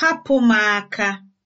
hapụ m aka!